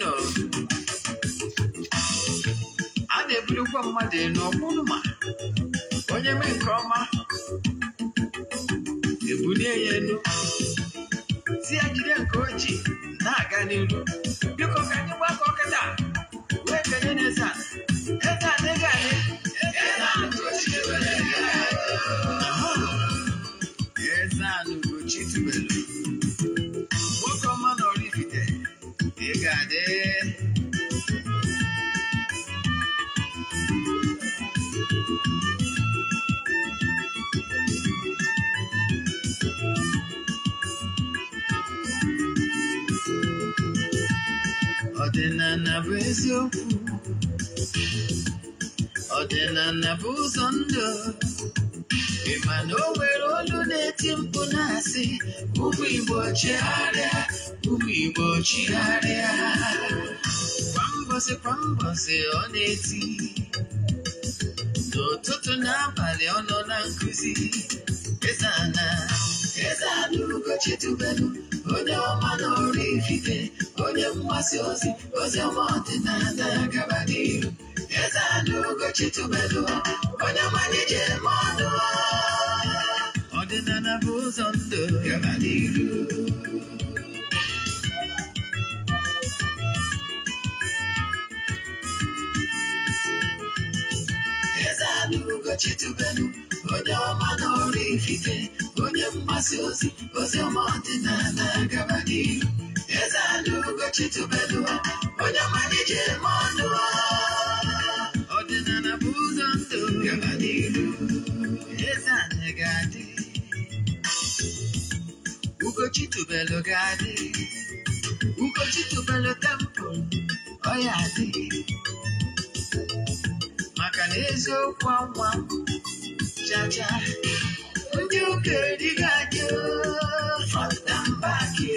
nọ. a na-ebulukwa mmadụ elu ma. onye mee nke ọma ebulie ya elu si ya jide nke ojii na-aga n'elu. biko ka anyị gbakọ kịta wee kenye n'eze eze praise you. Ọdịna na bụ ụzọ If ị ma na o nwere olu na-eti mkpu na-asị ụmụ Igbo chigharịa ụmụ Igbo chigharịa kwa mbọsị kwa mbọsị ọ na-eti n'ụtụtụ n'abalị ọ nọ na nkụzi Eze ana Eze ana Ugochi tubelu Olhama no orifice, olhama ciosi, olhama tenada cavaleiro. Rezado gotito belo, olhama nije mono. Ordenana buzondo, cavaleiro. Rezado gotito belo, onye ọma na ọrụ ikike onye mgbasa ozi ozi ọma ọdịnala gaba n'ihu eze ala ugochi tubelu onye malije ma ọnụ ọdịnala bụ ụzọ ndụ gaba n'ihu eze ala ga-adị ugochi tubelu ga-adị ugochi tubelu temple ọ ya adị maka na eziokwu anwa muchacha, yo quería gajo, flotan pa' aquí,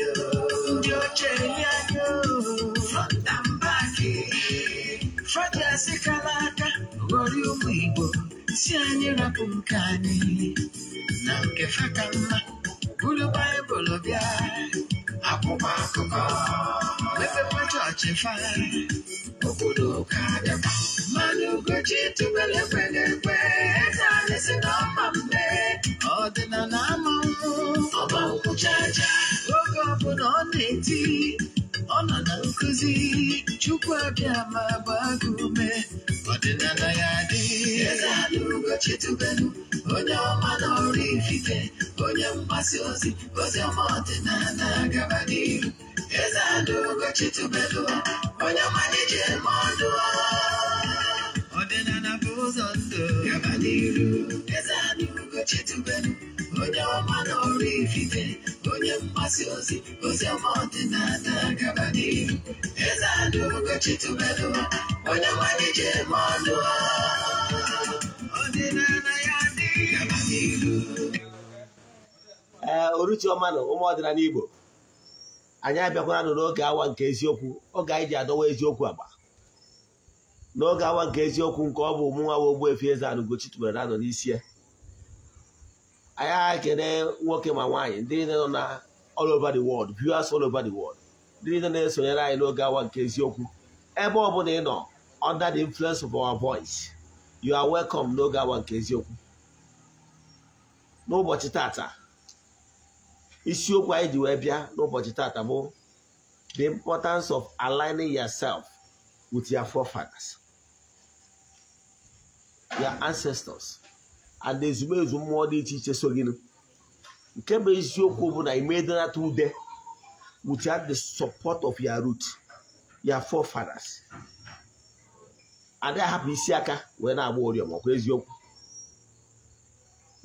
yo quería yo, flotan si kalaka, gori umibo, si anyi rapu mkani, na mke bulu bae bulu bia, akuma akuma, wepe pa chọọchị fa, obodo ka abịa, mmanụ ugochi tụbele ọ na na o na chukwu abịa ma gbaa ọdịnala ya dị ezealugochitubelu onye ọma n'ọrụ ifite onye mgbasa ozi ozi ọma ọdịnala gaba n'ihu ezealugochitubelu onye ọma na-eje ee oruchioma onye ọma na ọrụ onye mgbasa ozi n'ihu gaba n'ihu ee ụmụ ọdịnala Igbo anyị abịakwara nụ n'oge awa nke eziokwu oge anyị ji adọwa eziokwu agba n'oge awa nke eziokwu nke ọ bụ ụmụnwa wa efe Eze-Ana Ugochi tubelu n'isi ya anyị agha ekele nwoke ma nwaanyị ndị niile nọ na all over the world viewers all over the world ndị niile na-esonyere anyị n'oge awa nke eziokwu ebe ọ bụla ị nọ under the influence of our voice you are welcome n'oge awa nke eziokwu n'ụbọchị tata isiokwu anyị ji wee bịa n'ụbọchị tata bụ the importance of aligning yourself with your forefathers. their ancestors and ezumezu mmụọ dị iche iche so gị nke bụ eziokwu bụ na imedinata ude without the support of your root your forefathers and adịghị ahapụ isi aka wee na-agba oriọma ọkwa eziokwu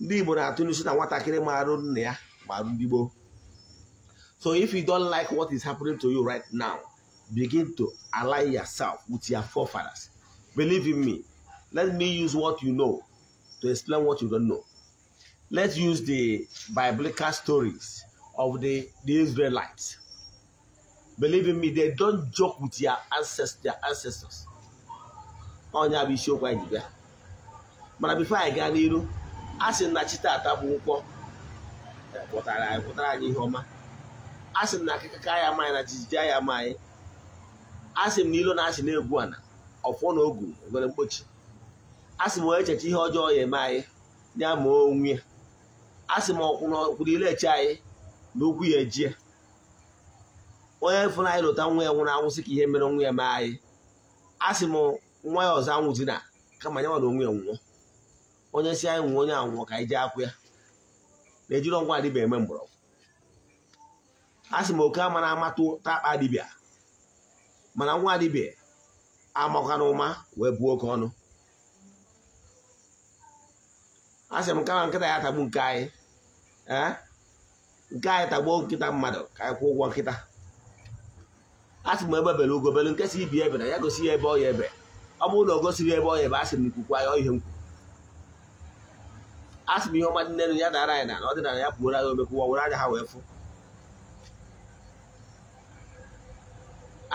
ndị Igbo na-atụ n'isi na nwatakịrị marụ nna ya marụ ndị gboo so if you don't like what is happening to you right now begin to align yourself with your forefathers believe in me let me use what you know to explain what you don't know. Let's use the biblical stories of the, the Israelites. Believe in me, they don't joke with their ancestors. Their ancestors. Ọnya bụ isiokwu anyị bịa. Mana bifo anyị gaa n'iru, a sị na chi taata bụ nkwọ pụtara anyị pụtara anyị ihe ọma. A sị na akịkaka ya ama anyị na jijiji ya ama anyị. A na ilo na ogu nwere mkpochi. asị m echecha ihe ọjọọ ya eme anyị ya ma onwe ya sị m ọkwụrụ ilechi anyị na okwu ya ejie onye fụnanyị lụta nwa ya nwụrụ anwụ sị ka ihe mere nwa ya mee anyị A sị m nwa ya ọzọ anwụzi na kama ya nwara onwe ya nwụọ onye si anyị nwụọ onye anwụọ ka anyị jee akwụ ya na-ejiri ọgwụ adịbịa eme mgbọrọgwụ asị m oke ama na-amatụ akpa dibịa mana nwa adịbịa amakwana ụma wee buo oke ọnụ asị m kama nkịta ya tagbu nke anyị nke anyị tagbuo nkịta mmadụ ka anyị kwụọ ụgwọ nkịta asị m ebe bere ugo bere nkesa ibi ebe na ya gosi ya ebe ọ ya ebe ọ bụrụ na ọ gosiri ebe ọ ya ebe asị m nkwukwa ya ihe nkwu asị m ihe ọma nne ya dara anyị na ọdịnala ya pụora ya omekwụwa were anya ha wee fụ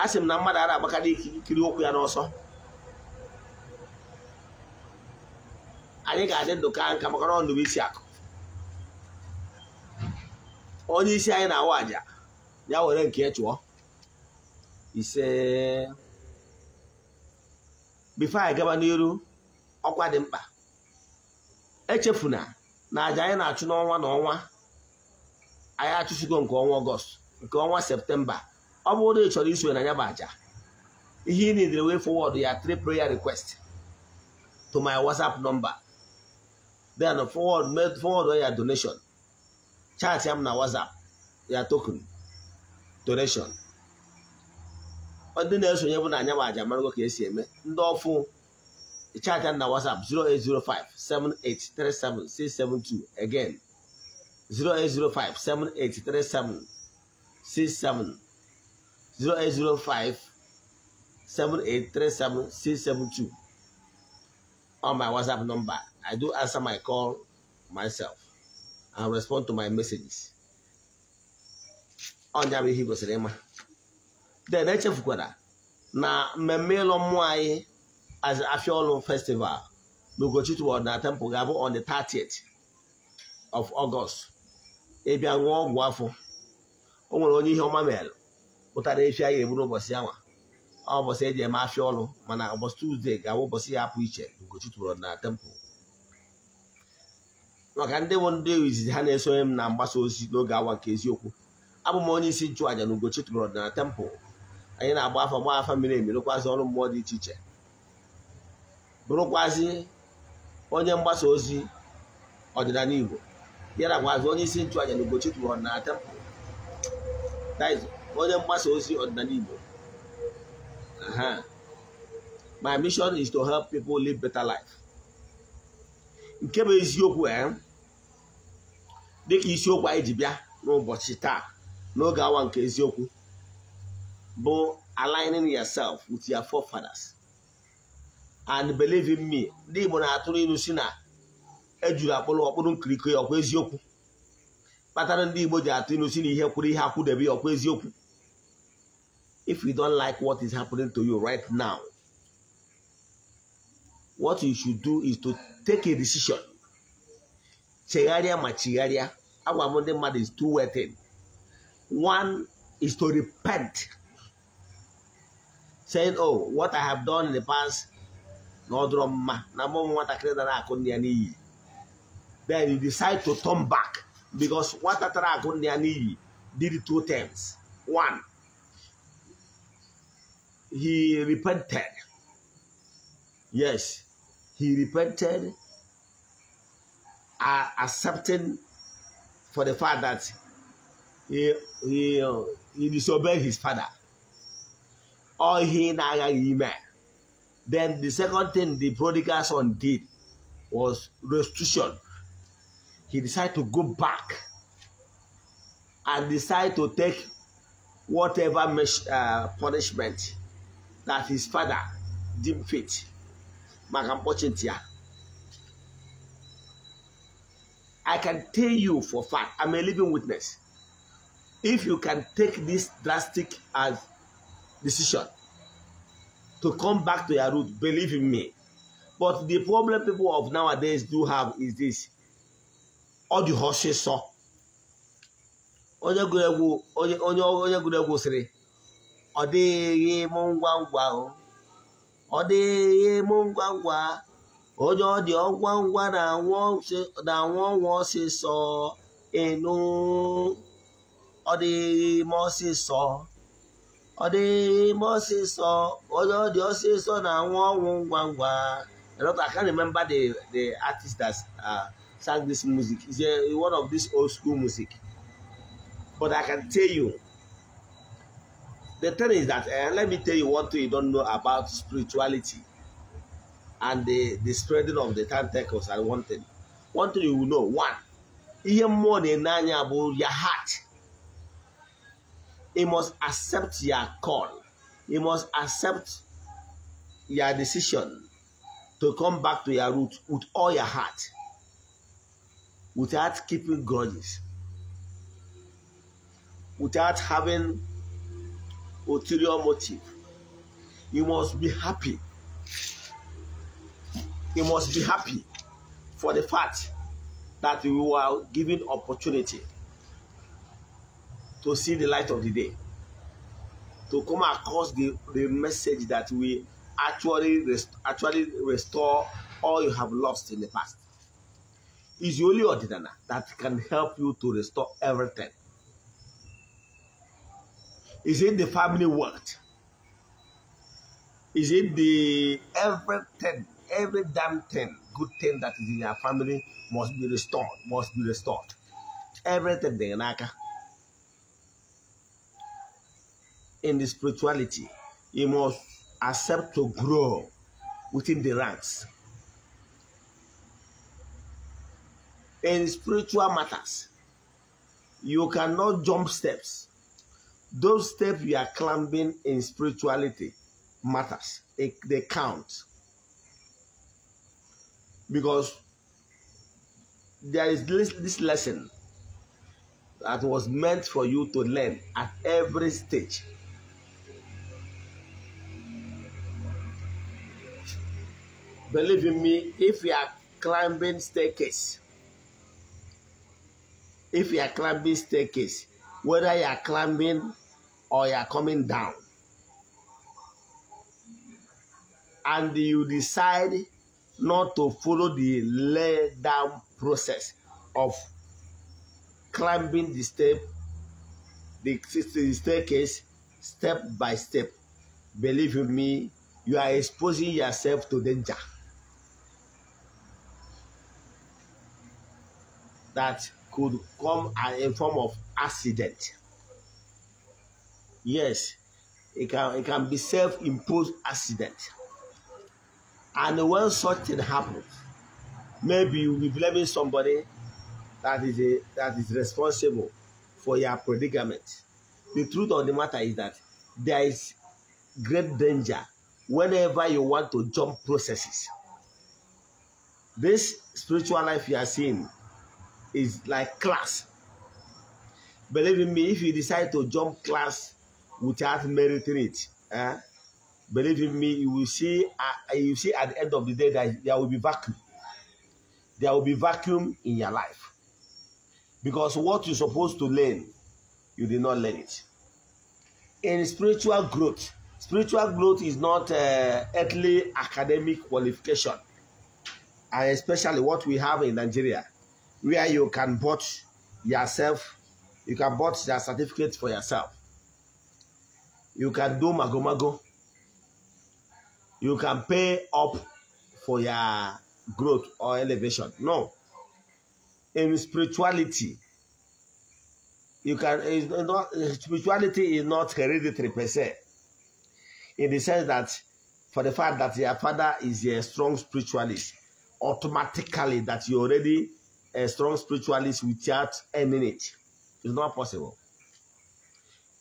asị m na mmadụ a na-agbakarị ikiri ụkwụ ya n'ọsọ anyị ga-adị ndụ ka nka maka na ndụ isi akụ onye isi anyị na-awa aja ya were nke chụọ ise bifo anyị gaba n'iru ọkwa dị mkpa echefuna na aja anyị na-achụ n'ọnwa na ọnwa anyị achụsigo nke ọnwa ọgọst nke ọnwa septemba ọ bụrụ na ị chọrọ isonye na ya bụ aja ihe ị nidere wee fọwọdụ ya three prayer request to my whatsapp number then forward made forward your donation chat am na whatsapp ya token donation ndị na-esonye bụ na anya ma aja marago ka esi eme ndị ọfụ chat ya na whatsapp 08057837672 again 08057837672 on my whatsapp number I do answer my call myself and respond to my messages. Ọnya bụ ihe gosiri ịma. Then echefukwara na mmemme ịlọ mmụọ anyị Afia Ọlụ festival n'Ugochukwu Ọdịnala Temple ga-abụ on the 30th of August. Ịbịa e ṅụọ ọgwụ afọ. O nwere onye ihe ọma mere pụtara efi anyị eburu ụbọchị anwa ọ ụbọchị eji eme afia ọlụ mana ụbọchị tuzdee ga-abụ ụbọchị ya apụ iche n'Ugochukwu Ọdịnala Temple. maka ndị bụ ndị izizi ha na-esonye m na mgbasa ozi n'oge awa nke eziokwu abụ m onye isi nchụaja na Ugochi tụrụ tempụl anyị na-agba afa gba afa miri emi rụkwazị ọrụ mmụọ dị iche iche bụrụkwazị onye mgbasa ozi ọdịnala Igbo ya nakwazi onye isi nchụaja na Ugochi tụrụ tempụl onye mgbasa ozi ọdịnala Igbo my mission is to help people live better life nke bụ eziokwu e dịka isiokwu anyị ji bịa n'ụbọchị taa n'oge awa nke eziokwu bụ aligning yourself with your forefathers and believe me ndị Igbo na-atụrụ ilu si na ejuru akpụrụ ọkpụrụ nkiriko ya ọkwa eziokwu kpatara ndị Igbo ji atụ ilu si na ihe kwụrụ ihe akwụdebe ya ọkwa eziokwu if you don't like what is happening to you right now what you should do is to take a decision Chegaria ma chigharịa agwa m ndị is two way thing one is to repent saying oh what i have done in the past No drama. dụrọ mma na mụ nwatakịrị dara akụ ndị ya n'iyi then you decide to turn back because what I akụ ndị ya did two things one he repented yes he repented, uh, accepting for the fact that he, he, uh, he disobeyed his father. Or he Then the second thing the prodigal son did was restitution. He decided to go back and decide to take whatever uh, punishment that his father deemed fit maka mkpọchi ntị I can tell you for fact, I'm a living witness. If you can take this drastic as decision to come back to your root, believe in me. But the problem people of nowadays do have is this. All the horses saw. onye gụrụ egwu sịrị ọ dịghị m ngwa ngwa ahụ ọ dịghị mụ ngwa ngwa onye ọ dị ọgwa ngwa na-anwụ ọnwụ ọsịsọ ịnụ ọ dịghị ime ọsịsọ ọ dịghị ime ọsịsọ onye ọ dị ọsịsọ na-anwụ ọnwụ ngwa ngwa lot I can't remember the the artist that uh, sang this music is a, one of this old school music but I can tell you The thing is that, uh, let me tell you one thing you don't know about spirituality and the, the spreading of the tentacles and one thing. One thing you will know, one, ihe mmụọ your heart. You must accept your call. You must accept your decision to come back to your root with all your heart without keeping grudges, without having ulterior motive. You must be happy. You must be happy for the fact that you are given opportunity to see the light of the day, to come across the, the message that we actually rest, actually restore all you have lost in the past. It's only ordinary that can help you to restore everything. Is it the family wealth? Is it the everything, every damn thing, good thing that is in your family must be restored, must be restored. Everything they lack in the spirituality, you must accept to grow within the ranks. In spiritual matters, you cannot jump steps those steps you are climbing in spirituality matters. It, they count. Because there is this, this lesson that was meant for you to learn at every stage. Believe in me, if you are climbing staircase, if you are climbing staircase, whether you are climbing or you are coming down. And you decide not to follow the lay down process of climbing the step, the staircase, step by step. Believe me, you are exposing yourself to danger. That could come in form of accident. Yes, it can it can be self-imposed accident. And when such thing happens, maybe you'll be blaming somebody that is a, that is responsible for your predicament. The truth of the matter is that there is great danger whenever you want to jump processes. This spiritual life you are seeing is like class. Believe in me, if you decide to jump class without meriting it. Eh? Believe in me, you will see. Uh, you see at the end of the day that there will be vacuum. There will be vacuum in your life because what you're supposed to learn, you did not learn it. In spiritual growth, spiritual growth is not uh, earthly academic qualification, and especially what we have in Nigeria, where you can bought yourself, you can bought your certificate for yourself you can do magomago. You can pay up for your growth or elevation. No. In spirituality, you can not, spirituality is not hereditary per se. In the sense that for the fact that your father is a strong spiritualist, automatically that you're already a strong spiritualist without earning it. It's not possible.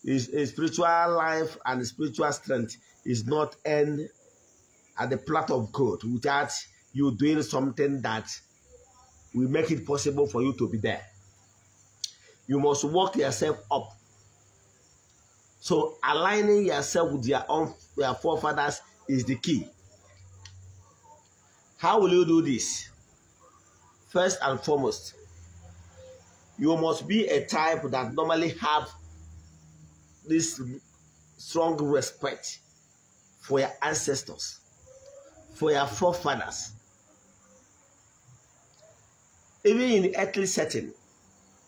His, his spiritual life and spiritual strength is not end at the plot of God without you doing something that will make it possible for you to be there. You must work yourself up. So aligning yourself with your own your forefathers is the key. How will you do this? First and foremost, you must be a type that normally have this strong respect for your ancestors, for your forefathers. Even in earthly setting,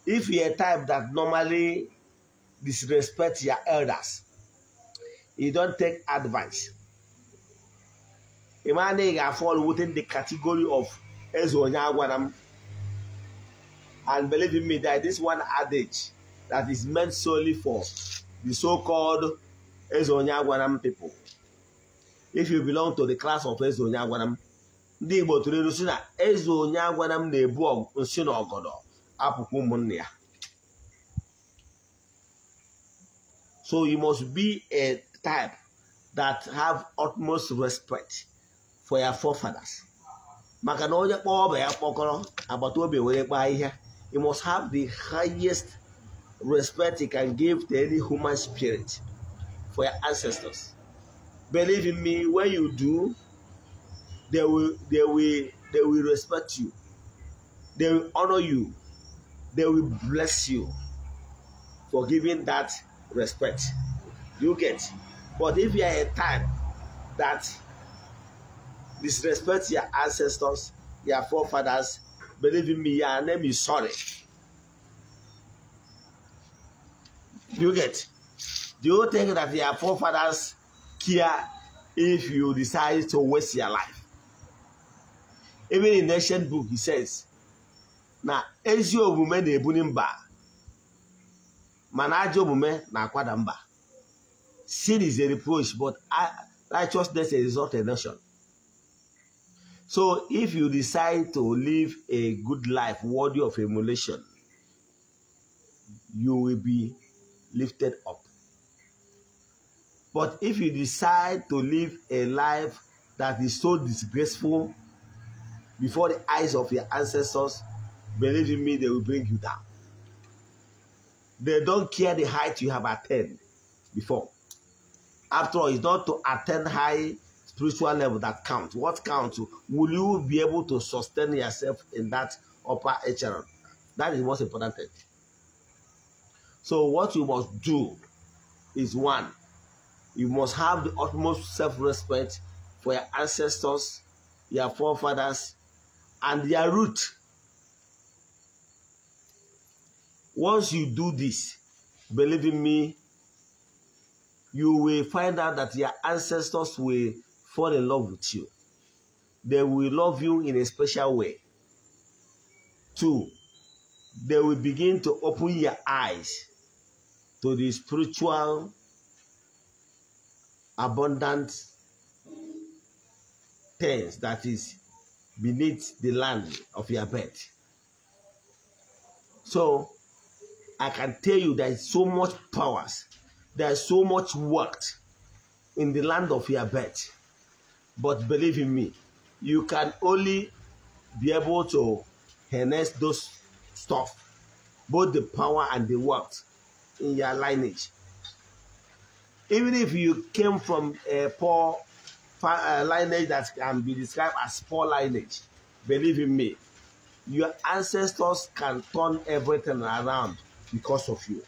if you're a type that normally disrespect your elders, you don't take advice. A man they fall within the category of Ezonyagwanam. And believe me that this one adage that is meant solely for the so-called Ezonyagwanam people. If you belong to the class of m ndị Igbo tụrụ ilu si na eze onye m na-ebu nsị na ọgọdọ apụkwa ụmụnne ya so you must be a type that have utmost respect for your forefathers maka na onye kpọọ ọba ya kpọkọrọ agbata obi were kpaa ahịhịa you must have the highest respect you can give to any human spirit for your ancestors. Believe in me, when you do, they will they will they will respect you, they will honor you, they will bless you for giving that respect. You get. But if you are a time that disrespect your ancestors, your forefathers, believe in me, your name is sorry. You get? Do you think that your forefathers care if you decide to waste your life? Even in the ancient book, he says, na ezi omume na-ebuli mba mana ajọ na kwadamba." sin is a reproach but righteousness exalts a nation so if you decide to live a good life worthy of emulation you will be lifted up. But if you decide to live a life that is so disgraceful before the eyes of your ancestors, believe in me, they will bring you down. They don't care the height you have attained before. After all, it's not to attain high spiritual level that counts. What counts? Will you be able to sustain yourself in that upper echelon? That is most important thing. So what you must do is one, you must have the utmost self-respect for your ancestors, your forefathers, and their root. Once you do this, believe in me, you will find out that your ancestors will fall in love with you. They will love you in a special way. Two, they will begin to open your eyes to the spiritual abundant things that is beneath the land of your bed. So I can tell you there is so much powers, there is so much work in the land of your bed. But believe in me, you can only be able to harness those stuff, both the power and the worth in your lineage. Even if you came from a poor uh, lineage that can be described as poor lineage, believe in me, your ancestors can turn everything around because of you.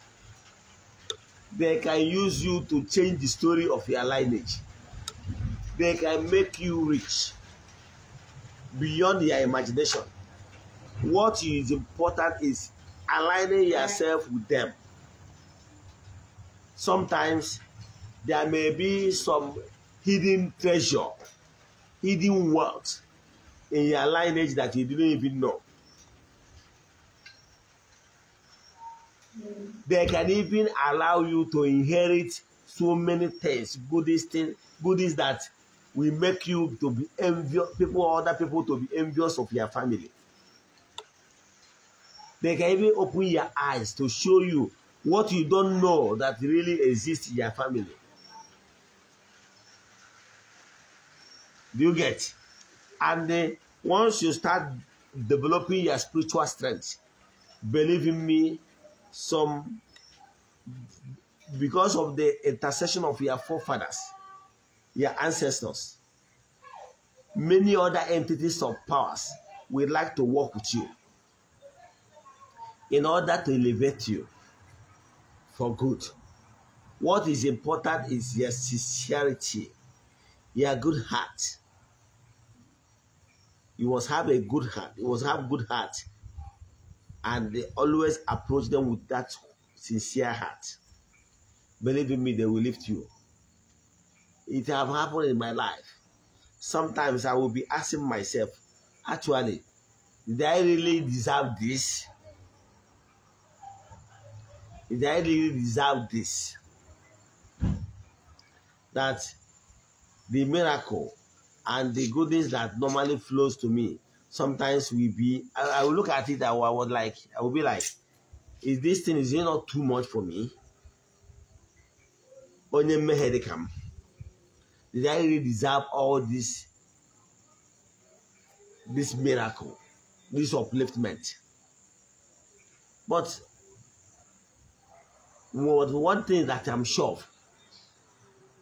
They can use you to change the story of your lineage. They can make you rich beyond your imagination. What is important is aligning yourself with them sometimes there may be some hidden treasure, hidden wealth in your lineage that you didn't even know. They can even allow you to inherit so many things, goodies, things, goodies that will make you to be envious, people, other people to be envious of your family. They can even open your eyes to show you what you don't know that really exists in your family. Do you get? And once you start developing your spiritual strength, believe in me, some because of the intercession of your forefathers, your ancestors, many other entities of powers would like to work with you in order to elevate you for good. What is important is your sincerity, your good heart. You must have a good heart. You must have good heart. And they always approach them with that sincere heart. Believe in me, they will lift you. It have happened in my life. Sometimes I will be asking myself, actually, did I really deserve this? Did I really deserve this? That the miracle and the goodness that normally flows to me sometimes will be, I, I will look at it, I, I would like, I will be like, is this thing, is it not too much for me? Onye mmehere come. Did I really deserve all this, this miracle, this upliftment? But what one thing that I'm sure of,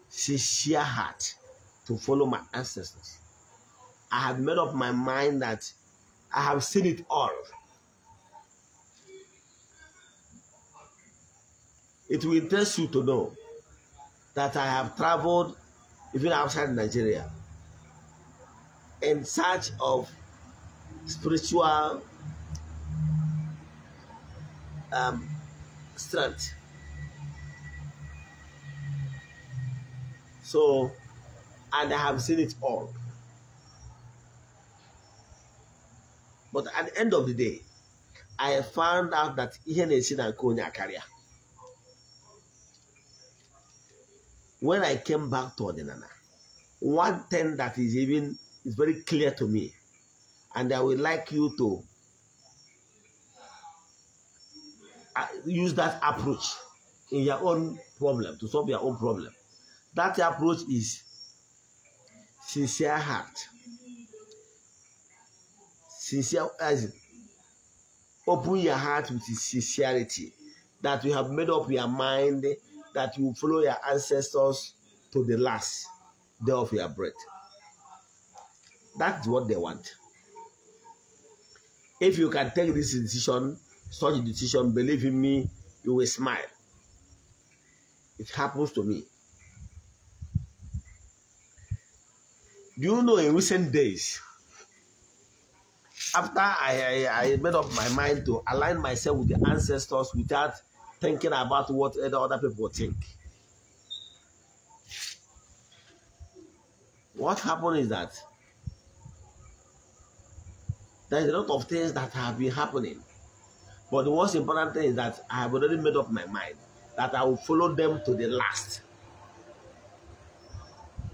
sincere heart to follow my ancestors. I have made up my mind that I have seen it all. It will interest you to know that I have traveled even outside Nigeria in search of spiritual um, strength. So, and I have seen it all. But at the end of the day, I found out that even na-esi na When I came back to Odinana, one thing that is even is very clear to me, and I would like you to uh, use that approach in your own problem to solve your own problem. That approach is sincere heart, sincere as open your heart with sincerity that you have made up your mind that you follow your ancestors to the last day of your breath. That's what they want. If you can take this decision, such a decision, believe in me, you will smile. It happens to me. Do you know in recent days, after I, I, I, made up my mind to align myself with the ancestors without thinking about what other people think, what happened is that there's a lot of things that have been happening. But the most important thing is that I have already made up my mind that I will follow them to the last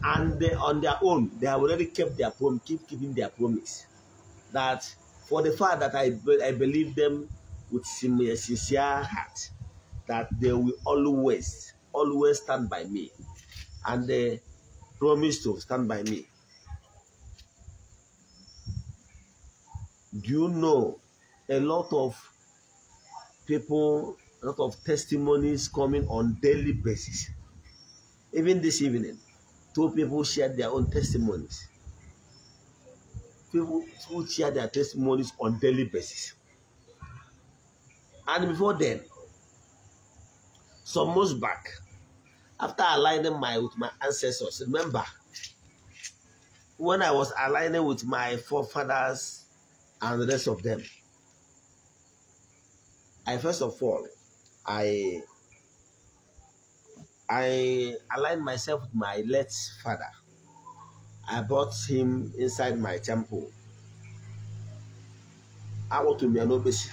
and they, on their own, they have already kept their promise, keep keeping their promise. That for the fact that I, be, I believe them with sincere heart, that they will always, always stand by me. And they promise to stand by me. Do you know a lot of people, a lot of testimonies coming on daily basis? Even this evening, Two people shared their own testimonies. People who share their testimonies on daily basis. And before then, some months back, after aligning my with my ancestors, remember when I was aligning with my forefathers and the rest of them, I first of all, I I aligned myself with my late father. I brought him inside my temple. I want to be an obese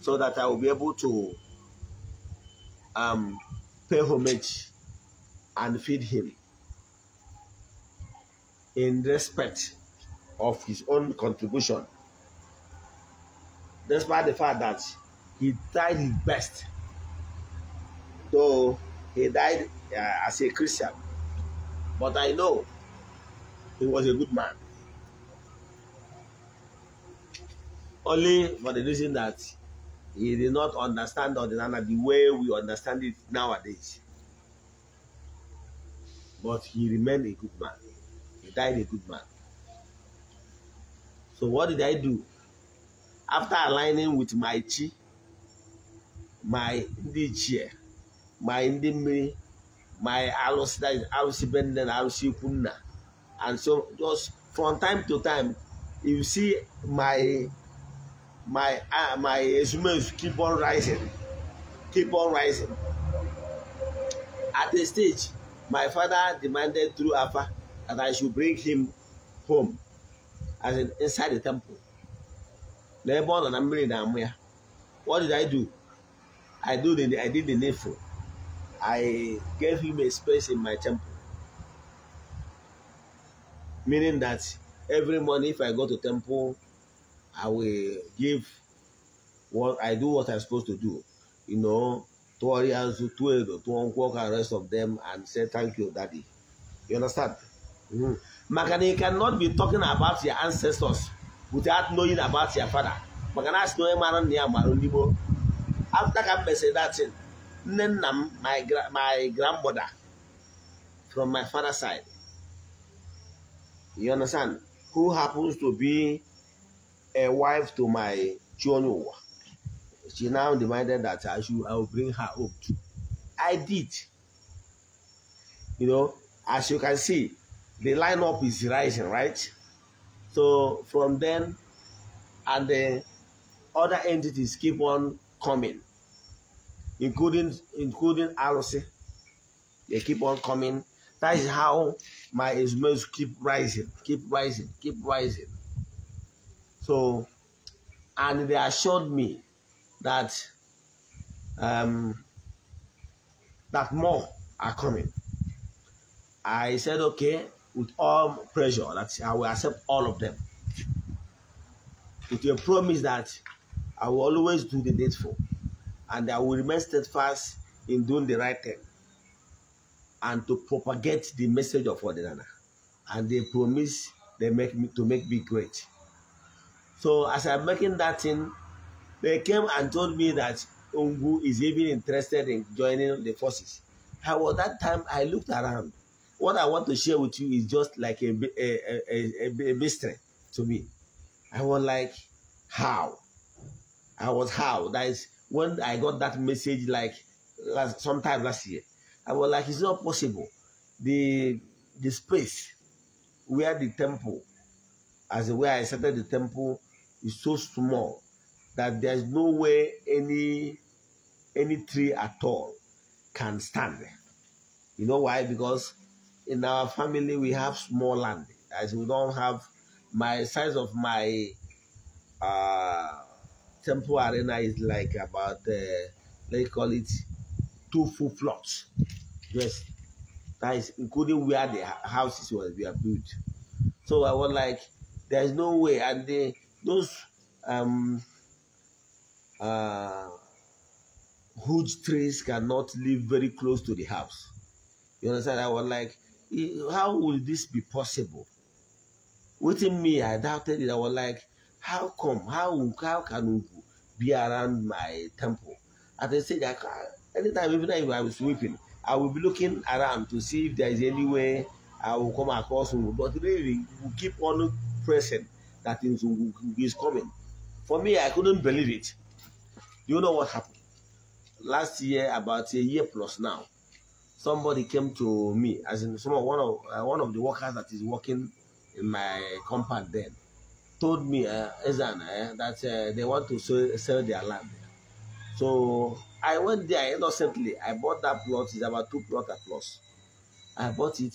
so that I will be able to um, pay homage and feed him in respect of his own contribution, despite the fact that he tried his best So he died uh, as a Christian. But I know he was a good man. Only for the reason that he did not understand Ordinana the way we understand it nowadays. But he remained a good man. He died a good man. So what did I do? After aligning with my chi, my Ndichie, ma ndị my ma alụsị alụsị be nne na alụsị ikwu and so just from time to time you see my my uh, my ezumezu keep on rising keep on rising at a stage my father demanded through afa that i should bring him home as in inside the temple n'ebe ọ nọ na mmiri na-amụ what did i do i do the i did the needful I gave him a space in my temple. Meaning that every morning if I go to temple, I will give what I do what I'm supposed to do. You know, to Arias, to Edo, to Unquok and rest of them and say thank you, Daddy. You understand? Mm. Makana, you cannot be talking about your ancestors without knowing about your father. Makana, I know man around near Marundibo. After I said that thing, Nnennam, my, gra my grandmother, from my father's side. You understand? Who happens to be a wife to my Chonu. She now demanded that I should I will bring her up too. I did. You know, as you can see, the lineup is rising, right? So from then, and the other entities keep on coming including including Alosy. They keep on coming. That is how my smells keep rising, keep rising, keep rising. So, and they assured me that um, that more are coming. I said okay with all pressure that I will accept all of them. With your promise that I will always do the date for and I will remain steadfast in doing the right thing and to propagate the message of Odinana. And they promise they make me to make me great. So as I'm making that thing, they came and told me that Ungu is even interested in joining the forces. However, that time I looked around. What I want to share with you is just like a, a, a, a, a mystery to me. I was like, how? I was how? That is when I got that message like last, sometime last year, I was like, it's not possible. The the space where the temple, as where I started the temple, is so small that there's no way any any tree at all can stand. You know why? Because in our family we have small land, as we don't have my size of my uh Temple Arena is like about, uh, let's call it two full plots. Yes, that is including where the houses were, built. So I was like, there is no way. And those um, uh, huge trees cannot live very close to the house. You understand? I was like, how will this be possible? Within me, I doubted it. I was like, how come? How, how can be around my temple. At the stage, I anytime, even if I'm sweeping, I will be looking around to see if there is any way I will come across him. But really, we keep on pressing that things is coming. For me, I couldn't believe it. You know what happened? Last year, about a year plus now, somebody came to me, as in someone, one of uh, one of the workers that is working in my compound then told me, uh, Ezan, uh, that uh, they want to sell, sell their land. So I went there innocently. I bought that plot. It's about two plot at plus. I bought it.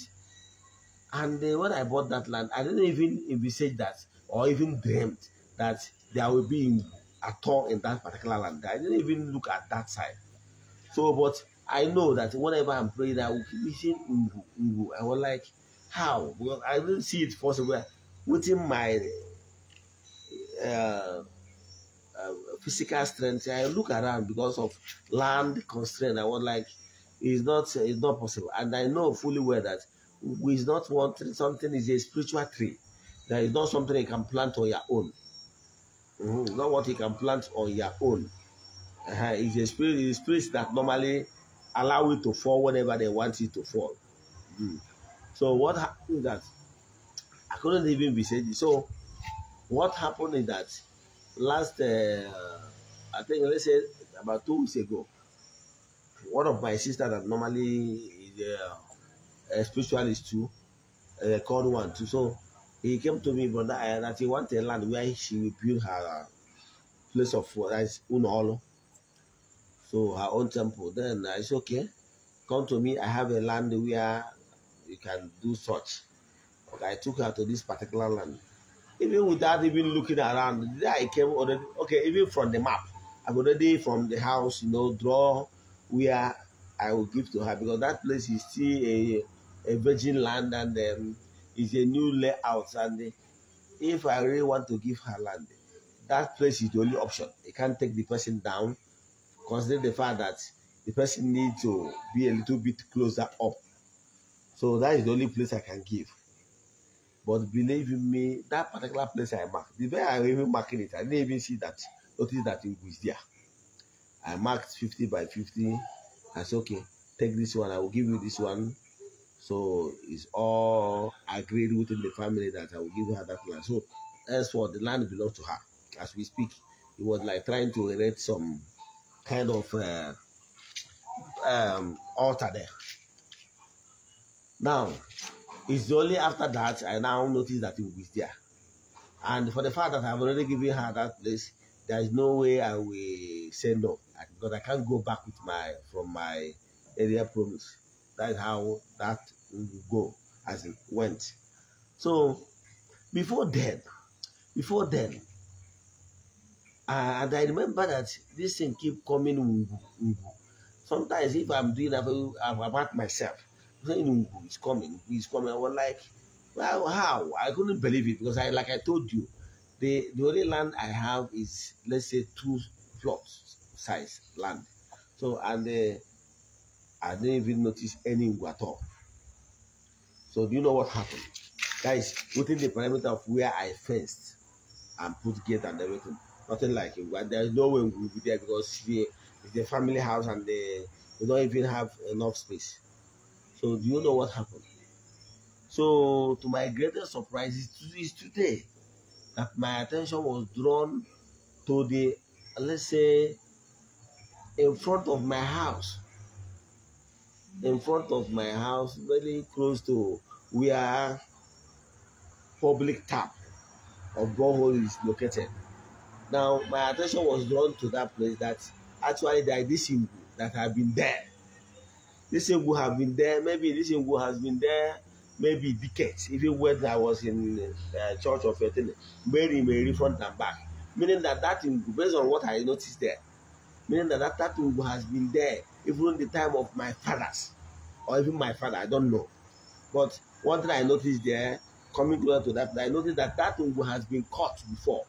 And uh, when I bought that land, I didn't even envisage that or even dreamt that there will be at all in that particular land. I didn't even look at that side. So, but I know that whenever I'm praying, I will keep seeing mm-hmm, mm-hmm. I was like, how? Because I didn't see it possible within my uh, uh, uh, physical strength. I look around because of land constraint. I was like, it's not it's not possible. And I know fully well that we is not wanting Something is a spiritual tree. There is not something you can plant on your own. Mm -hmm. Not what you can plant on your own. Uh -huh. It's a spirit. It's a spirit that normally allow you to fall whenever they want you to fall. Mm. So what happened that I couldn't even be said. So what happened is that last, uh, I think let's say about two weeks ago, one of my sisters, that normally is uh, a spiritualist too, uh, called one too. So he came to me, brother, uh, that he wanted land where she will build her uh, place of worship, that is Unolo. So her own temple. Then I said, okay, come to me. I have a land where you can do such. Okay, I took her to this particular land even without even looking around there i came already okay even from the map i already from the house you know draw where i will give to her because that place is still a a virgin land and um, it's a new layout and if i really want to give her land that place is the only option I can't take the person down consider the fact that the person needs to be a little bit closer up so that is the only place i can give but believe me, that particular place I marked, the way I even marking it, I didn't even see that, notice that it was there. I marked 50 by 50. I said, okay, take this one, I will give you this one. So it's all agreed within the family that I will give her that land. So as for the land belongs to her. As we speak, it was like trying to erect some kind of uh, um, altar there. Now, it's only after that I now notice that it was there. And for the fact that I've already given her that place, there is no way I will say no because I can't go back with my from my earlier promise. That is how that will go as it went. So before then, before then, uh, and I remember that this thing keep coming. Sometimes if I'm doing, I'm at myself saying who is coming, who is coming. I was like, well, how? I couldn't believe it because I, like I told you, the the only land I have is let's say two plots size land. So and uh, I didn't even notice any at all. So do you know what happened? guys? within the perimeter of where I fenced and put gate and everything. Nothing like it. There is no way we will be there because the, the family house and the they don't even have enough space. So do you know what happened? So to my greatest surprise, it's today that my attention was drawn to the, let's say, in front of my house. In front of my house, very close to where public tap or borehole is located. Now, my attention was drawn to that place that actually there is this that have been there. This Igbo have been there. Maybe this Igbo has been there. Maybe decades. Even when I was in uh, Church of Etene, Mary, maybe front and back. Meaning that that thing based on what I noticed there, meaning that that, that Igbo has been there even the time of my fathers, or even my father. I don't know. But one thing I noticed there, coming closer to that, I noticed that that thing has been caught before.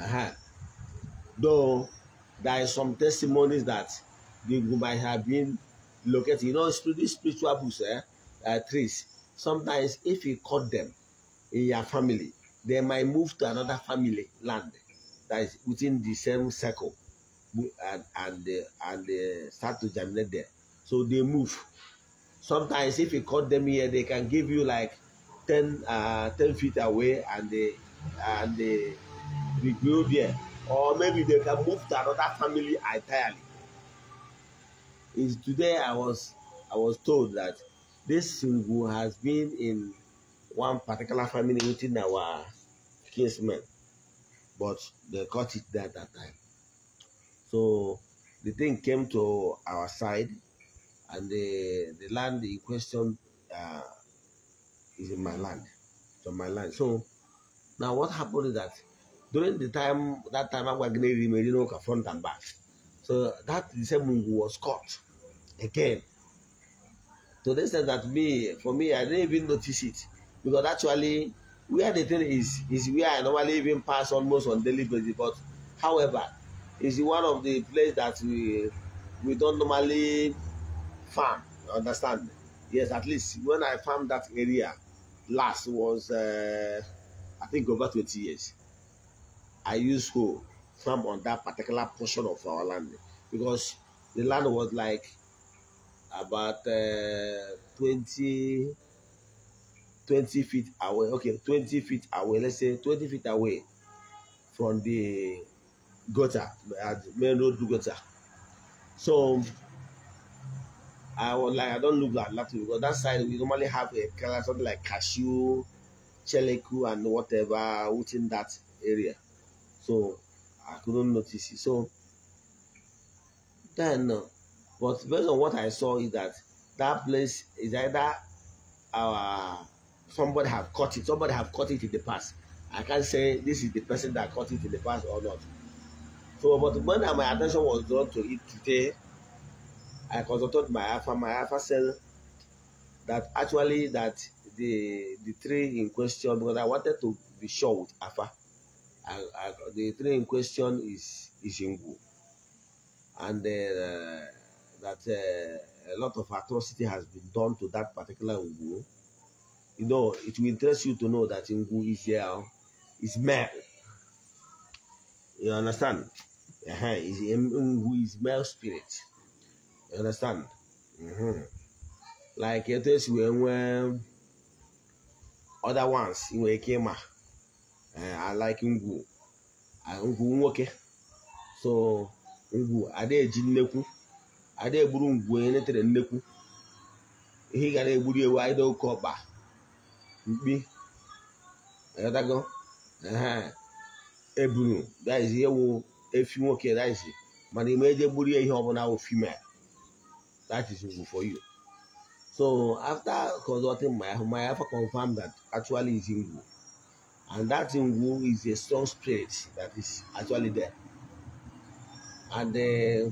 Uh -huh. Though there are some testimonies that they might have been located. You know, these spiritual books, eh, uh, trees, sometimes if you cut them in your family, they might move to another family land that is within the same circle and, and, uh, and uh, start to germinate there. So they move. Sometimes if you cut them here, they can give you like 10, uh, 10 feet away and they, and they regrow there. Or maybe they can move to another family entirely is today I was I was told that this Singu has been in one particular family within our kinsmen, but they caught it there at that time. So the thing came to our side, and the the land in question uh, is in my land, so my land. So now what happened is that during the time that time I was Agwagneri Merino front and back. So that same was caught again. To the extent that me, for me, I didn't even notice it because actually where the thing is is where I normally even pass almost on daily basis. But however, is one of the place that we we don't normally farm. Understand? Yes, at least when I farm that area last was uh, I think over 20 years. I used hoe farm on that particular portion of our land because the land was like about uh, 20, 20 feet away. Okay, 20 feet away. Let's say 20 feet away from the gutter, at uh, the main road gutter. So I was like, I don't look that that because that side we normally have a color, something like cashew, cheleku, and whatever within that area. So I couldn't notice it. So then, uh, but based on what I saw is that that place is either our uh, somebody have caught it, somebody have caught it in the past. I can't say this is the person that caught it in the past or not. So, but when my attention was drawn to it today, I consulted my alpha, my alpha said that actually that the the tree in question because I wanted to be sure with alpha I, I, the train in question is Ishingu. And uh, that uh, a lot of atrocity has been done to that particular Ngu. You know, it will interest you to know that Ngu is here, is male. You understand? Uh -huh. is, Ngu is male spirit. You understand? Mm -hmm. Like it is when when other ones, came Ekema. alike eh, ngwu ngwu nwoke so ngwu adaeji nnekwu ada egburu ngwu onye netere nnekwu ihe ị gara egburu ewu aịda oke ọkpa mkpi dago eburu e daizi ewu efi nwoke daizi mana ime eje gburu ihe ọbụla wụ female that is ngwu for you so after consulting my my alpha confirmed that actually is ngwu And that in Wu is a strong spirit that is actually there. And uh,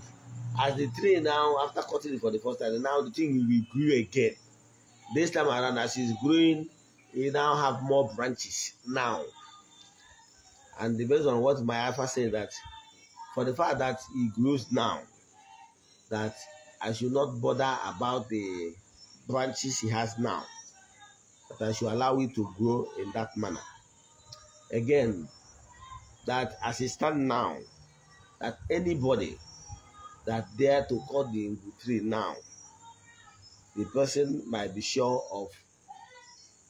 as the tree now, after cutting it for the first time, now the thing will grow again. This time around, as it's growing, you now have more branches now. And based on what my alpha said that for the fact that it grows now, that I should not bother about the branches he has now, but I should allow it to grow in that manner again that as it stand now, that anybody that dare to cut the tree now, the person might be sure of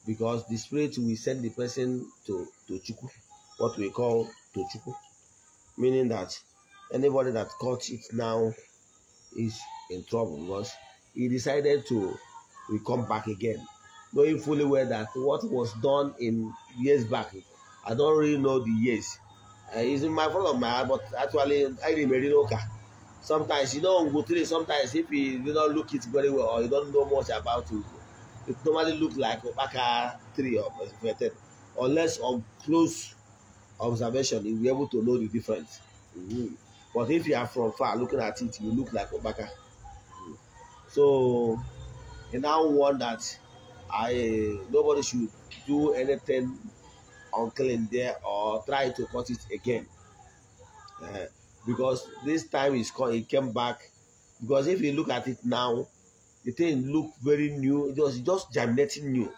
because the spirit will send the person to to chuku, what we call to chuku, meaning that anybody that cuts it now is in trouble because he decided to will come back again, knowing fully well that what was done in years back I don't really know the years. Uh, it's in my front of my heart, but actually, I remember Oka. Sometimes you don't go through it. Sometimes if you, you don't look it very well or you don't know much about it, it normally looks like Opaka 3 or Veten. Unless on close observation, you'll be able to know the difference. Mm-hmm. But if you are from far looking at it, you look like Opaka. Mm-hmm. So, and now want that I nobody should do anything uncle in there or try to cut it again. Uh, because this time it's called, it came back. Because if you look at it now, the thing look very new. It was just germinating new.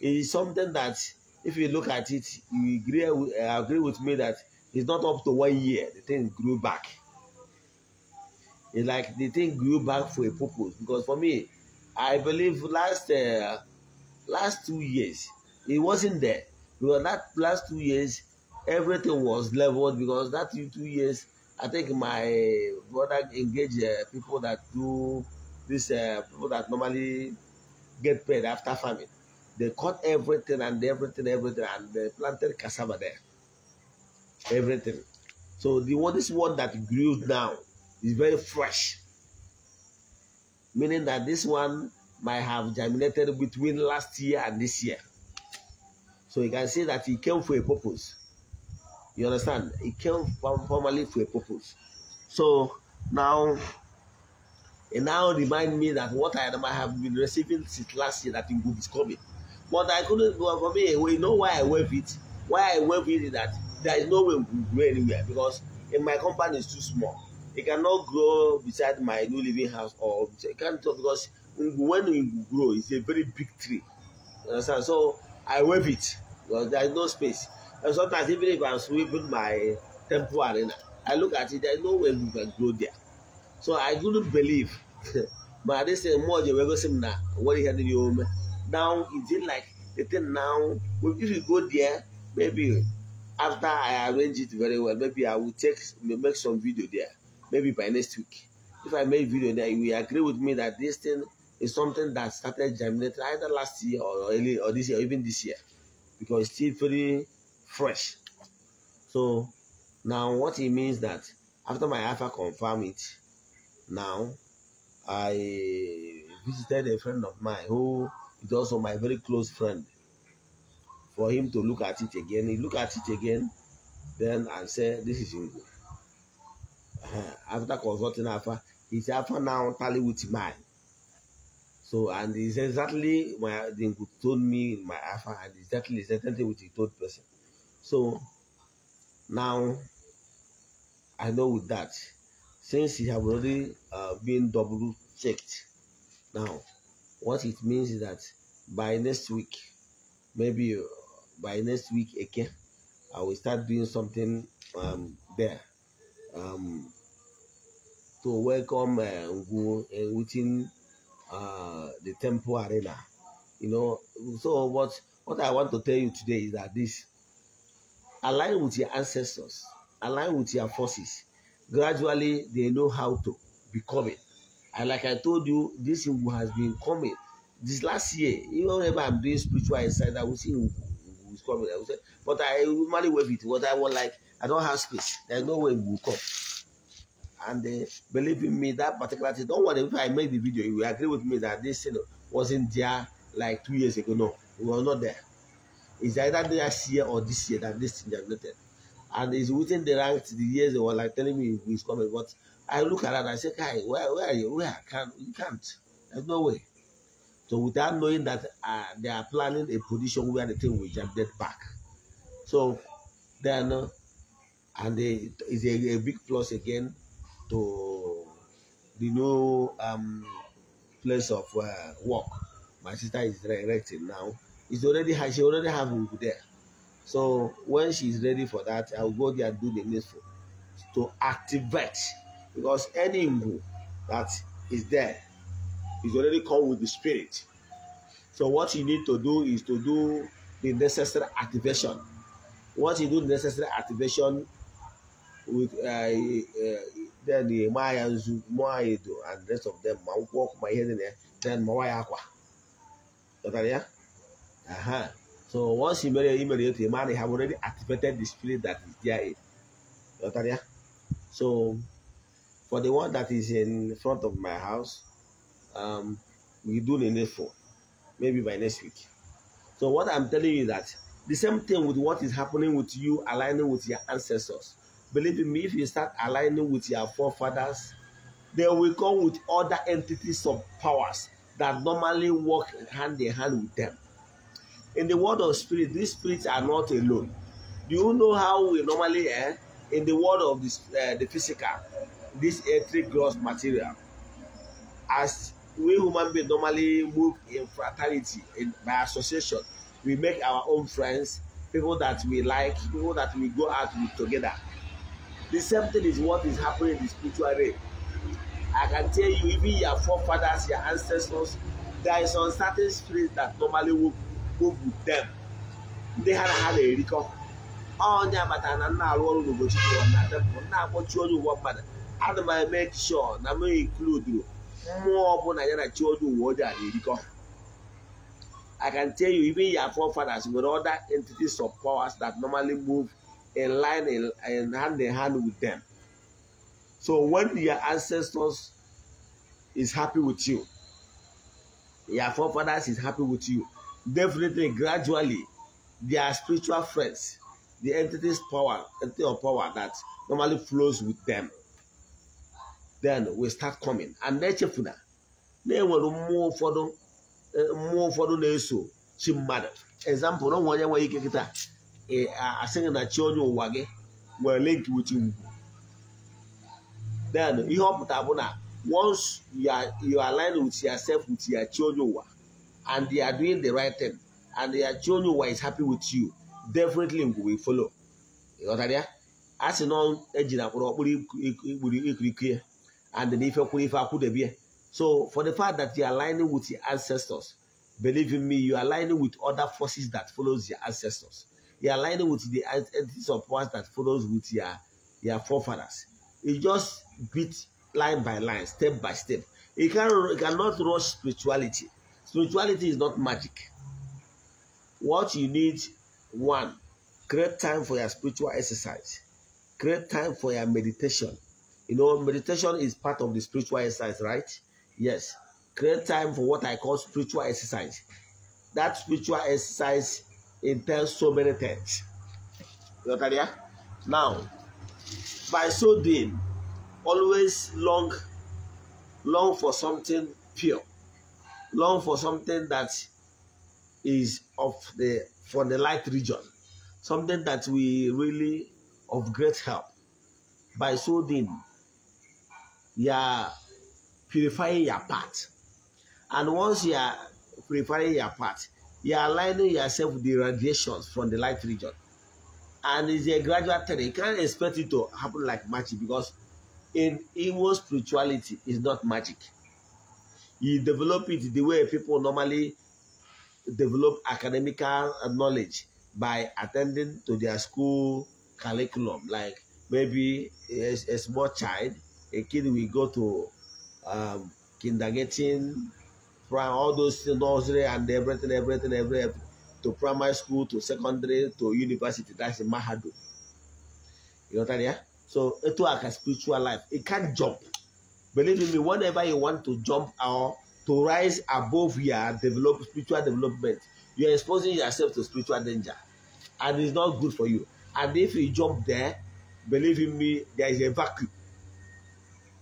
It is something that, if you look at it, you agree, uh, agree with me that it's not up to one year. The thing grew back. It's like the thing grew back for a purpose. Because for me, I believe last uh, last two years, it wasn't there because that last two years everything was leveled because that two years i think my brother engaged uh, people that do this uh, people that normally get paid after farming they cut everything and everything everything and they planted cassava there everything so the one this one that grew now is very fresh meaning that this one might have germinated between last year and this year so you can see that he came for a purpose. You understand? He came formally for a purpose. So now, and now remind me that what I have been receiving since last year that it is coming. But I couldn't go for me. You know why I wave it? Why I wave it is that there is no way we will grow anywhere because in my company is too small. It cannot grow beside my new living house or it can't because when we grow, it's a very big tree. You understand? So I wave it because there is no space. And sometimes even if I'm sweeping my temple arena, I look at it, there is no way we can grow there. So I do not believe. but this eh, thing more than we go see now. What is happening home? Now is it like the thing now? If you go there, maybe after I arrange it very well, maybe I will take make some video there. Maybe by next week. If I make video there, you will agree with me that this thing is something that started germinating either last year or early or this year, or even this year, because it's still very fresh. So now what it means that after my alpha confirm it, now I visited a friend of mine who is also my very close friend for him to look at it again. He looked at it again, then I said, This is Ingo. Uh-huh. After consulting Alpha, his Alpha now tally with mine. So, and it's exactly my they told me my alpha, and exactly exactly with the third person. So now I know with that, since it have already uh, been double checked, now what it means is that by next week, maybe uh, by next week again, I will start doing something um, there um, to welcome uh, uh within uh, the temple arena. You know, so what what I want to tell you today is that this align with your ancestors, align with your forces. Gradually, they know how to become it. And like I told you, this Ngu has been coming. This last year, even whenever I'm doing spiritual inside, I will see who is coming. I will say, but I normally wave it. What I want, like, I don't have space. There's no way Ngu will come and uh, believe in me that particular thing. Don't worry if I make the video, you will agree with me that this thing you know, wasn't there like two years ago. No, we were not there. It's either last year or this year that this thing generated. And it's within the ranks the years they were like telling me it's coming. But I look around and I say, Kai, where, where are you? Where? Can, you can't. There's no way. So without knowing that uh, they are planning a position where the thing will jump dead back. So then, uh, and they, uh, it's a, a big plus again to the new um, place of uh, work. My sister is directing now. It's already she already have Ugu there. So when she's ready for that, I'll go there and do the needful to activate because any Ugu that is there is already come with the spirit. So what you need to do is to do the necessary activation. Once you do the necessary activation, with uh, uh, then the Maya Nzu, Maya do, and the rest of them. I walk my head in there, then Maya Aqua. Okay, uh-huh. So once you marry immediately, man, they have already activated the spirit that is there. Okay, so for the one that is in front of my house, um, we do the next four, maybe by next week. So what I'm telling you that the same thing with what is happening with you aligning with your ancestors. Believe in me, if you start aligning with your forefathers, they will come with other entities of powers that normally work hand in hand with them. In the world of spirit, these spirits are not alone. Do you know how we normally, eh, in the world of this, uh, the physical, this earthly gross material, as we human beings normally move in fraternity, in, by association, we make our own friends, people that we like, people that we go out with together. The same thing is what is happening in the spiritual realm. I can tell you, even your forefathers, your ancestors, there is uncertain spirits that normally work, work with them. Ndị ha na ha na-erikọ onye amata na nna arụ ọrụ n'ụbọchị ụwa na tempụl na-akpọchi onye ụwa mmadụ ana m eme sure na m inkluduru mmụọ ọbụla ya na chi onye ụwa ọjọọ na-erikọ I can tell you even your forefathers nwere other entities of powers that normally move in line in, in hand in hand with them. So when your ancestors is happy with you, your forefathers is happy with you, definitely gradually their spiritual friends, the entity's power, entity of power that normally flows with them, then we start coming. And nechefuna, na they will move forward, mmụọ ụfọdụ na-eso she mmadụ. Example, no onwe onye nwere ike kịta. Eh? asịnachi onye ụwa gị nwere link with you then ihe ọ pụtara bụ na once you align with yourself with your chi onye ụwa and they are doing the right thing and your chi onye ụwa is happy with you definitely we will follow ịghọtara ya a sị na ejina kwụrụ ọkpụrụ ikpuru ikirikie and na ife kwụrụ ife akwụdebie so for the fact that you are aligning with your ancestors believe in me you are aligning with other forces that follows your ancestors you are aligning with the entities of ones that follows with your, your forefathers. You just beat line by line, step by step. You, can, you cannot rush spirituality. Spirituality is not magic. What you need, one, create time for your spiritual exercise. Create time for your meditation. You know, meditation is part of the spiritual exercise, right? Yes. Create time for what I call spiritual exercise. That spiritual exercise it tells so many things. You understand? Now, by so doing, always long, long for something pure, long for something that is of the from the light region, something that we really of great help. By so doing, you are purifying your path, and once you are purifying your path, you are aligning yourself with the radiations from the light region. And it's a gradual thing. You can't expect it to happen like magic because in Igbo spirituality is not magic. You develop it the way people normally develop academic knowledge by attending to their school curriculum. Like maybe a, a small child, a kid will go to um, kindergarten prime, all those nursery and everything, everything, everything, to primary school, to secondary, to university. That's Mahadu. You know that, yeah? So it's like a spiritual life. It can't jump. Believe me, whenever you want to jump or to rise above your develop spiritual development, you are exposing yourself to spiritual danger. And it's not good for you. And if you jump there, believe in me, there is a vacuum.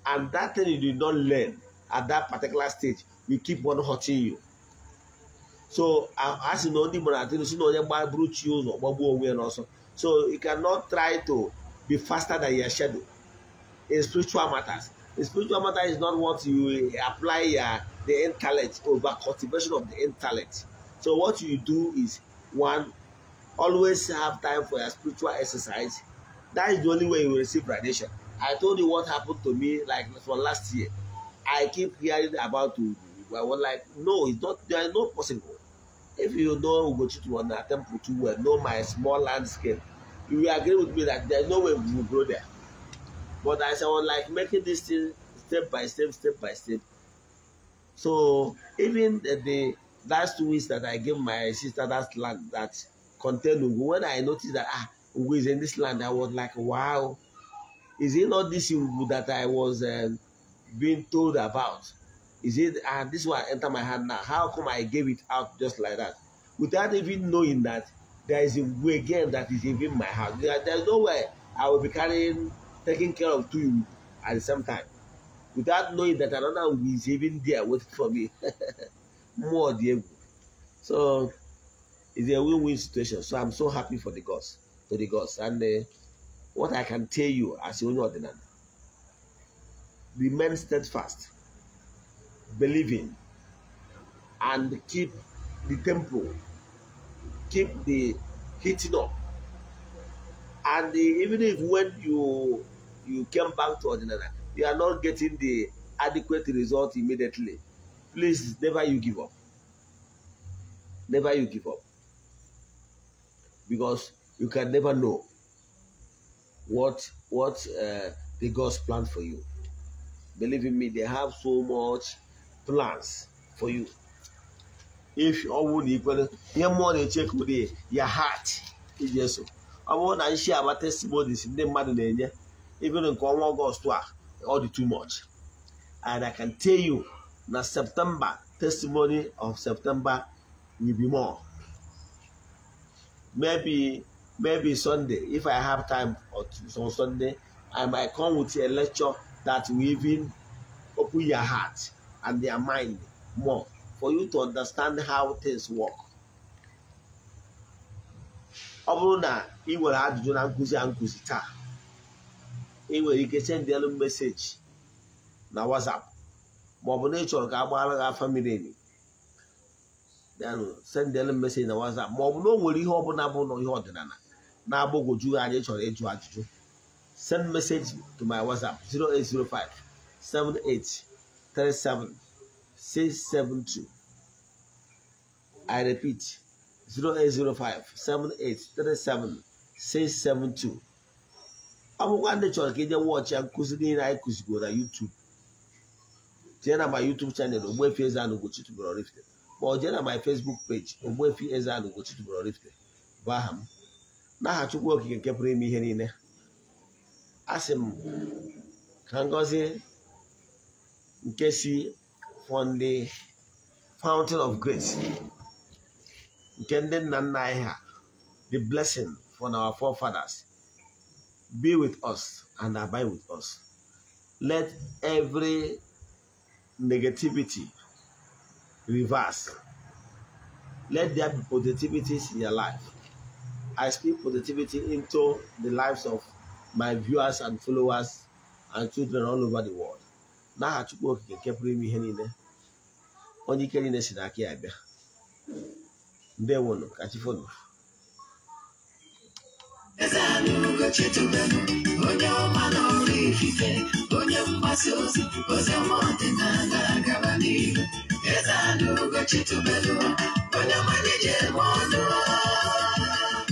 And that thing you did not learn at that particular stage you keep on hurting you so as sị na ndị gbara atịrị si na onye gbaburu chi ụzọ gbagbuo onwe ya n'ọsọ so you cannot try to be faster than your shadow in spiritual matters in spiritual matter is not what you eh, apply your the intellect over cultivation of the intellect so what you do is one always have time for your spiritual exercise that is the only way you receive radiation i told you what happened to me like for last year i keep hearing about to. I was like, no, it's not, there is no possible. If you know Ugochitu on attempt to well, know my small landscape, you will agree with me that there's no way we will grow there. But I was like making this thing step by step, step by step. So even the, the last two weeks that I gave my sister that land that contained Ugo, when I noticed that ah, Ugo is in this land, I was like, wow, is it not this Ugo that I was uh, being told about? Is it, ah, this one enter my hand now. How come I gave it out just like that? Without even knowing that there is a way again that is even my heart? There, there's no way I will be carrying, taking care of two at the same time. Without knowing that another is even there waiting for me. More the So, it's a win-win situation. So I'm so happy for the gods, to the gods. And uh, what I can tell you as your ordinary, remain steadfast believing and keep the temple, keep the heating up. And the, even if when you you came back to ordinary, you are not getting the adequate result immediately. Please, never you give up. Never you give up. Because you can never know what what uh, the God's plan for you. Believe in me, they have so much plans for you. If you all equal, your money check with you, your heart is just. I want to share our testimonies in the Madeleine, even in August, all the too much. And I can tell you, that September, testimony of September will be more. Maybe maybe Sunday, if I have time or on Sunday, I might come with a lecture that will even open your heart and their mind more for you to understand how things work. ọ bụrụ na ị nwere ajụjụ na nkụzi a nkụzi taa ị nwere ike sendị meseji na WhatsApp ma ọ bụ na ị chọrọ ka a gbaara gị afa miri emi sendị meseji na WhatsApp ma ọ bụ na o nwere ihe ọ bụ na ihe ọdịnala na-agbagwoju anyị chọrọ ịjụ ajụjụ send message to my WhatsApp 0805 78 37 672. I repeat 0805 7837 672. ọ bụkwa ndị chọrọ ka ị jee wọchị nkụzi niile anyị kụzigo na YouTube jee na my YouTube channel Ogbuefi eze n'ogbe Ugochi ma ọ jee na my Facebook page Ogbuefi Eze-Ana Ugochi tubelu bụ aha m n'aha Chukwu Okike nke ime ihe niile a sị m ka ngozi Nkesi from the fountain of grace. The blessing from our forefathers be with us and abide with us. Let every negativity reverse. Let there be positivities in your life. I speak positivity into the lives of my viewers and followers and children all over the world. n'aha Chukwu okike nke pụrụ ime ihe niile onye ike niile si n'aka ya bịa ndewonu ka chi eze anụ ugochi tubelu onye ọma na ọrụ onye mgbasa ozi ozi ọma ọdịnala agara n'ihu eze anụ ugochi tubelu onye ọma nye je ọnụ